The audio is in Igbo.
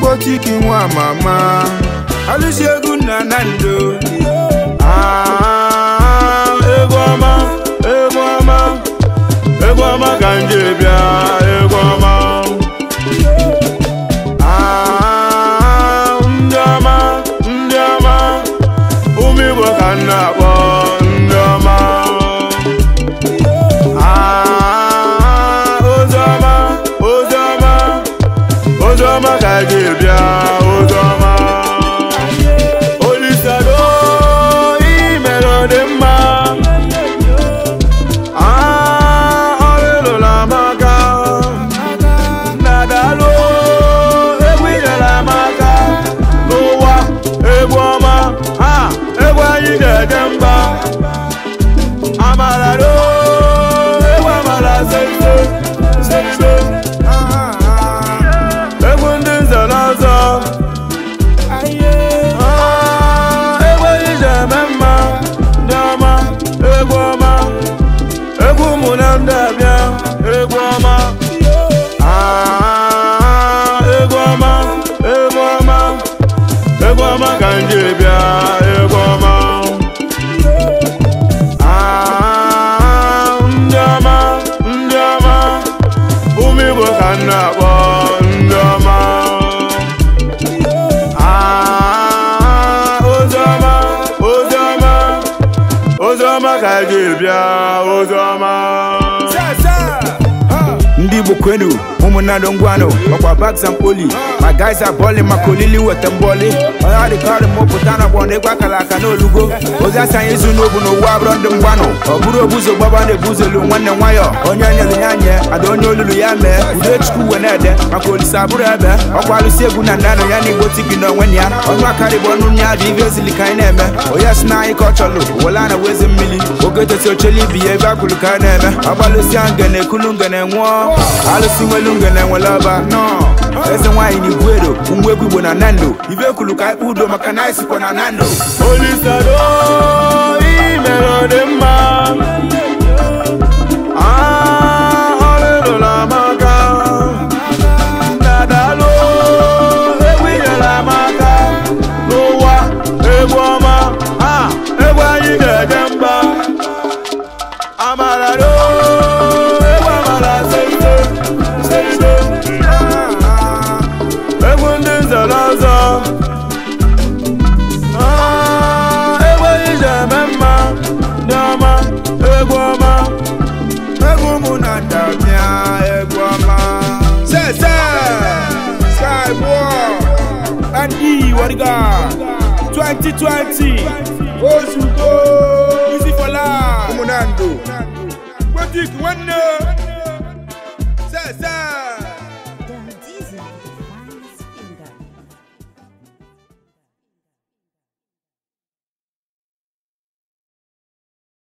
Botiki mwa mama Alusi egwu na Ah demais. kana bondoma ah ozoma ozoma ozoma kajibia ozoma sasa ndi bukwenu ụmụnna dongwano ọkwa bags and poli my guys are balling maka olili weta mbọli ọya dịkọrị mụpụta na ọgbọ oh na egwu aka n'olugo ozi asị anyị zu n'obu n'ụwa abụrọ ndị mgbanụ ọ bụrụ obuzo gbaba na-ebuzolu nwanne nwayọ onye nyere ya nye ada onye olulu ya mee udo chukwu wee na-ede maka olise abụrụ ebe ọkwa alụsi egwu na ndanụ ya na igbo tigi na onwe ya ọnụ akarị bụ ọnụ ya dị ka na-eme onye a chọlụ oge ibi ya ebe akwụrụ ka a na-eme agbalụsi ekulu ngene nwụọ Onge na enwela ọba nọọ eze nwaanyị na igwe edo nwa egwu igbo na nando ibe kwuru ka i k udo maka na isikwa na nando olisado imere ọ dị mma bodyguard twenty twenty oṣù tó easy for life. umunando wetin wen know.